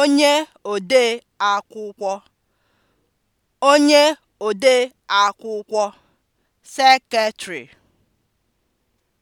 onye ode akwụkwọ onye ode akwụkwọ (seketịrị)